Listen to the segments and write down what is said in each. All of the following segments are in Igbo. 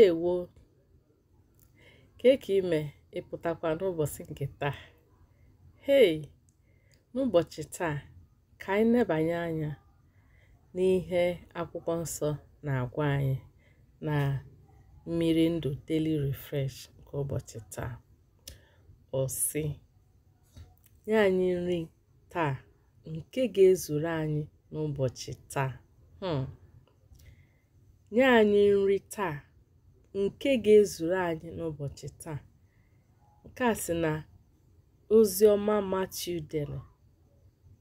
ndewo ka e ka ime ịpụtakwa n'ụbọchị nke taa hei n'ụbọchị taa ka anyị nebanye anya n'ihe akwụkwọ nsọ na-agwa anyị na mmiri ndụ daily refresh nke ụbọchị taa osi nye anyị nri taa nke ga-ezuru anyị n'ụbọchị taa hmm. nye anyị nri taa nke ga-ezuru anyị n'ụbọchị taa. Nke a si na ozi ọma Matiu dere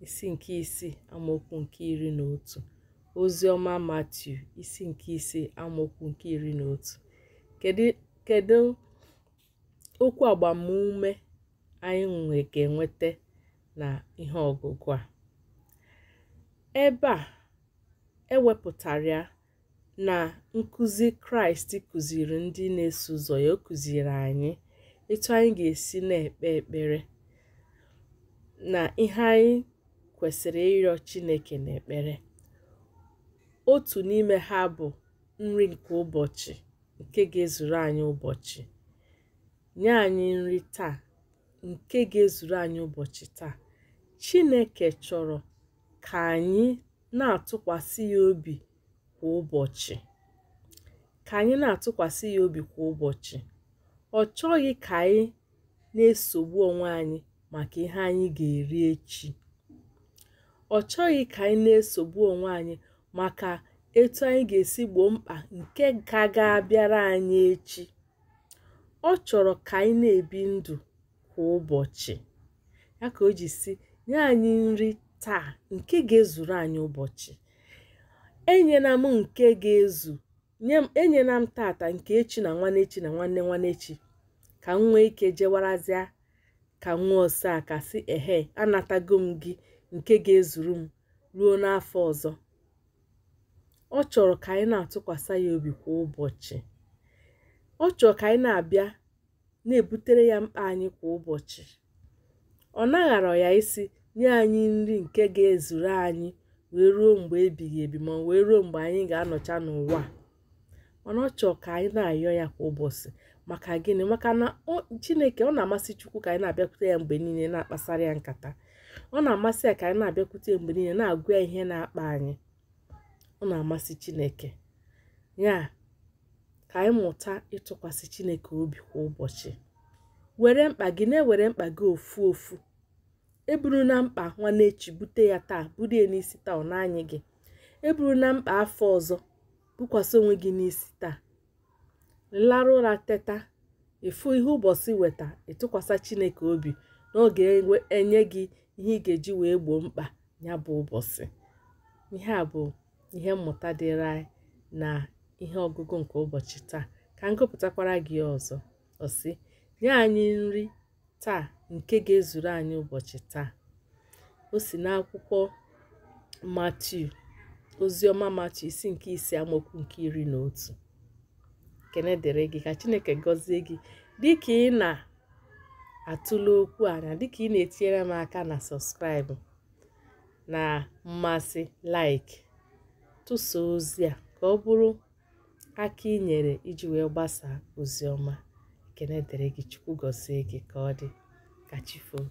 isi nke isii amaokwu nke iri na otu ozi ọma Matiu isi nke isii amaokwu nke iri na otu kedu okwu agbamume anyị ga-enweta na ihe ọgụgụ a ebe a ewepụtara ya na nkụzi kraịst kụziri ndị na-eso ụzọ ya ọ kụziri anyị etu anyị ga-esi na-ekpe ekpere na ihe anyị kwesịrị ịrịọ chineke na-ekpere. otu n'ime ha bụ nri nke ụbọchị nke ga-ezuru anyị ụbọchị nye anyị nri taa nke ga-ezuru anyị ụbọchị taa chineke chọrọ ka anyị na-atụkwasị ya obi kwa ụbọchị ka anyị na-atụkwasị ya obi kwa ụbọchị ọ chọghị ka anyị na-esogbu onwe anyị maka ihe anyị ga-eri echi ọ chọghị ka anyị na-esogbu onwe anyị maka etu anyị ga-esi gboo mkpa nke ga ga-abịara anyị echi ọ chọrọ ka anyị na-ebi ndụ kwa ụbọchị ya ka o ji si nye anyị nri taa nke ga-ezuru anyị ụbọchị enyela m nke ga-ezu enyela m tata nke echi na echi na nwanne echi ka m nwee ike jewarazịa ka nwa ose a ka sị ehe anatago m gị nke ga-ezuru m ruo n'afọ ọzọ ọ chọrọ ka anyị na-atụkwasị ya obi kwa ụbọchị ọ chọrọ ka anyị na-abịa na-ebutere ya mkpa anyị kwa ụbọchị ọ naghara ya isi nye anyị nri nke ga-ezuru anyị wee ruo mgbe ebighị ebi ma wee ruo mgbe anyị ga-anọcha n'ụwa mana ọ chọọ ka anyị na-ayọ ya kwa ụbọchị maka gịnị maka na chineke ọ na-amasị chukwu ka anyị na-abịakwute ya mgbe niile na-akpasara ya nkata ọ na-amasị ya ka anyị na-abịakwute ya mgbe niile na-agụ ya ihe na-akpa anyị ọ na-amasị chineke ya ka anyị mụta ịtụkwasị chineke obi kwa ụbọchị were mkpa gị na-ewere mkpa gị ofu ofu eburu na mkpa nwanechi bute ya taa buru ya n'isi taa ọ na-anyị gị eburu na mkpa afọ ọzọ bukwasị onwe gị n'isi taa larụ ụra teta ịfụ ihe ụbọchị weta ịtụkwasị chineke obi n'oge enye gị ihe ị ga-eji wee gboo mkpa ya bụ ụbọchị ihe a bụ ihe mmụta dịrị anyị na ihe ọgụgụ nke ụbọchị taa ka m gụpụtakwara gị ọzọ ọsị nye anyị nri taa nke ga-ezuru anyị ụbọchị taa o si n'akwụkwọ Matiu oziọma Matiu isi nke ise amokwu nke iri na otu kene gị ka Chineke gọzie gị dị ka ị na-atụle okwu anya na dịka ị na-etinyere m aka na sọskraịbụ na mmasị like tụsa ozi a ka ọ bụrụ aka ị nyere iji wee gbasaa ozi ekene dịrị gị chukwu gọzie gị ka ọ dị ka chi foo